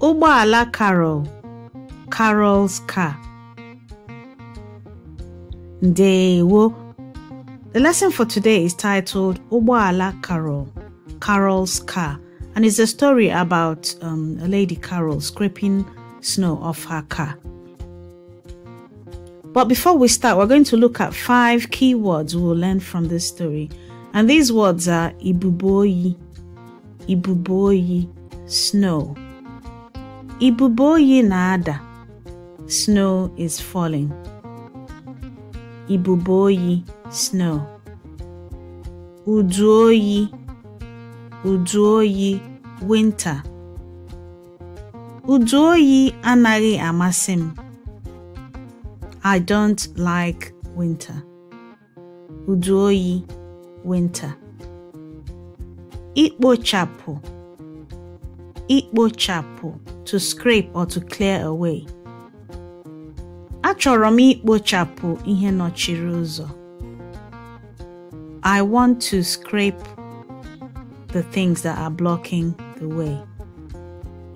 Ụgbọala Carol, Carol's car. Ndewo. The lesson for today is titled Ụgbọala Carol, Carol's car, and it's a story about um, a lady Carol scraping snow off her car. But before we start, we're going to look at five key words we'll learn from this story. And these words are Ibuboyi, ibubo oyi snow ibubo oyi na-ada snow is falling ibubo oyi snow udu oyi udu oyi winter udu oyi anaghị amasị m I don't like winter. Udu oyi winter. Ikpochapụ. Ikpochapụ. To scrape or to clear away. Achọrọ m ikpochapụ ihe nọchiri ụzọ. I want to scrape the things that are blocking the way.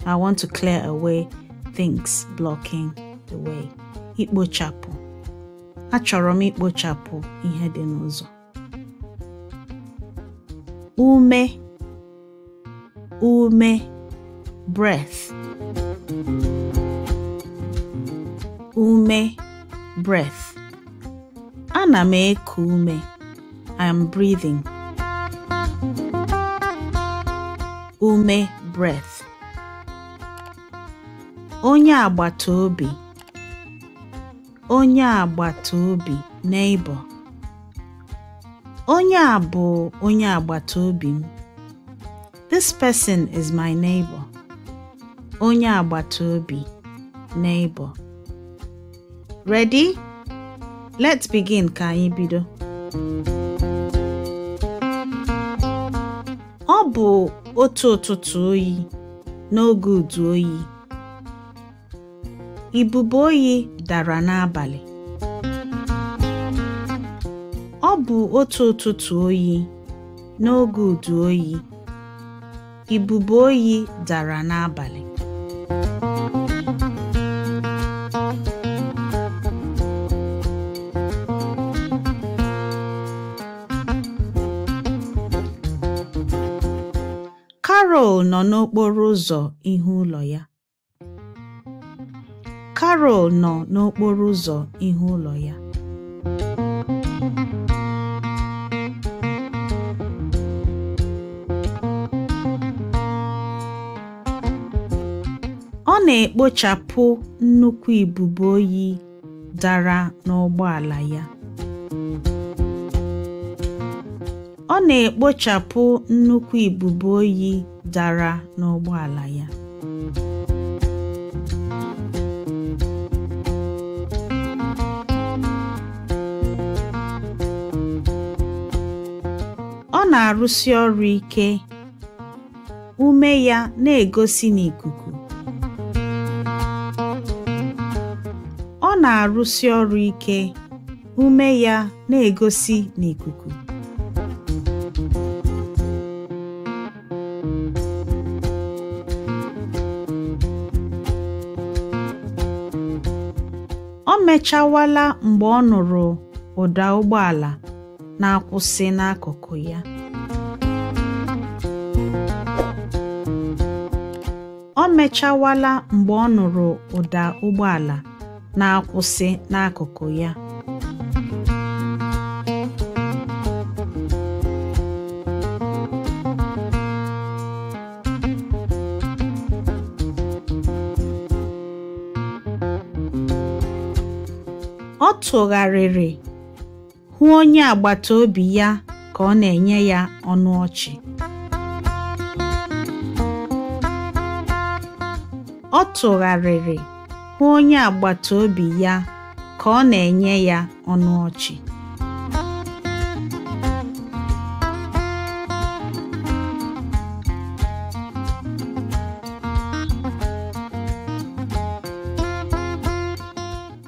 I want to clear away things blocking the way. Ikpochapụ. Achọrọ m ikpochapụ ihe dị n'ụzọ. Ume ume breath ume breath ana m eku ume I am breathing ume breath onye agbata obi onye agbata obi neighbor onye a bụ onye agbata obi m This person is my neighbor. Onye agbata obi, neighbor. Ready? Let's begin ka anyị bido. Ọ bụ otu ụtụtụ oyi n'oge udu oyi. Ibube oyi dara n'abalị. Ọ bụ otu ụtụtụ oyi n'oge udu oyi. Ibube oyi dara n'abalị. Carol nọ n'okporo ụzọ ihu ụlọ ya. nọ n'okporo ụzọ ihu ụlọ ya. Ọ na-ekpochapụ nnukwu ibubo oyi dara n'ụgbọala ya. Ọ na-arụsi ọrụ ike, ume ya na-egosi n'ikuku. ọ na-arụsi ọrụ ike ume ya na-egosi n'ikuku ọ mechawala mgbe ọ nụrụ ụda ụgbọala na-akwụsị n'akụkụ ya ọ mechawala mgbe ọ nụrụ ụda ụgbọala na-akwụsị n'akụkụ ya ọ tụgharịrị hụ onye agbata obi ya ka ọ na-enye ya ọnụ ọchị ọ tụgharịrị hụ onye agbata obi ya ka ọ na-enye ya ọnụ ọchị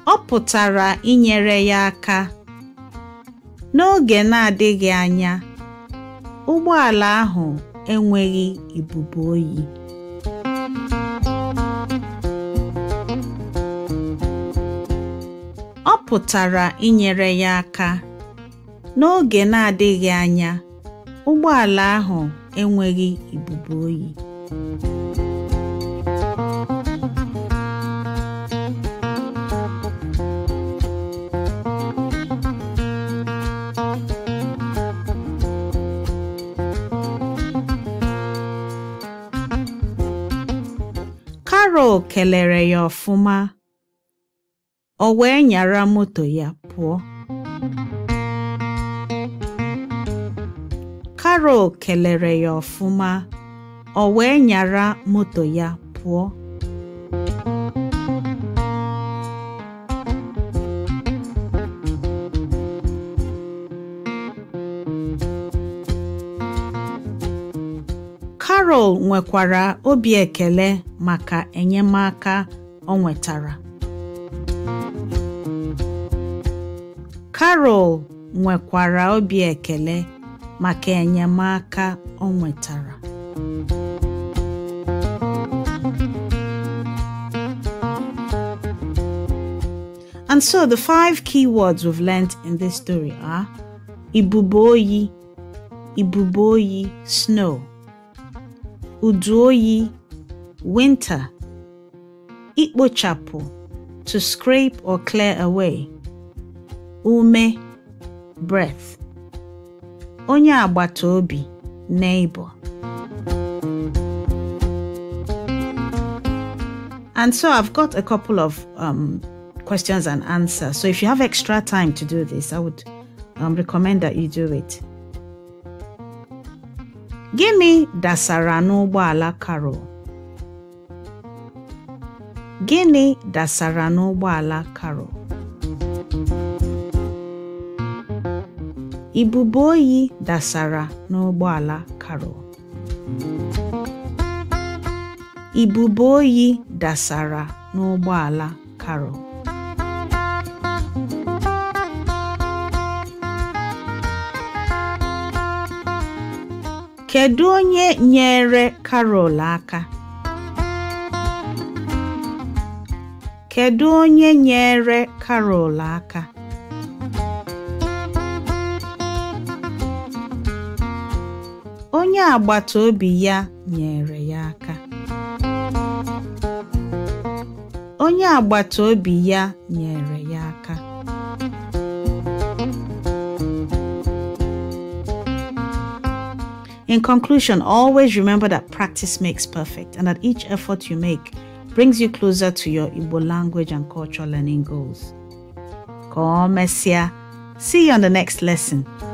ọ pụtara inyere ya aka n'oge na-adịghị anya ụgbọala ahụ enweghị ibubo oyi pụtara inyere ya aka. N'oge na-adịghị anya, ụgbọala ahụ enweghị ibubu oyi. Carol kelere ya ọfụma ọ wee nyara moto ya pụọ Carol kelere ya ọfụma ọ wee nyara moto ya pụọ karol nwekwara obi ekele maka enyemaka o nwetara Carol nwekwara obi ekele maka enyemaka o nwetara. And so the five key words we've learnt in this story are ibubo oyi ibubo oyi snow, udu oyi winter, ikpochapu, to scrape or clear away, ume breath onye agbata obi neighbor and so i've got a couple of um, questions and answers so if you have extra time to do this i would um, recommend that you do it gịnị dasara n'ụgbọala carol gịnị dasara n'ụgbọala carol Ibubo oyi dasara n'ụgbọala Carol. Ibubo oyi dasara n'ụgbọala Carol. Kedu onye nyere Carol aka? Kedu onye nyere Carol aka? onye agbata obi ya nyere ya aka onye agbata obi ya nyere ya aka In conclusion, always remember that practice makes perfect and that each effort you make brings you closer to your Igbo language and cultural learning goals. Come, mesia, See you on the next lesson.